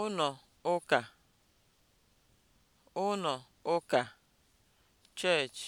ụnọ ụka ụnọ ụka (church)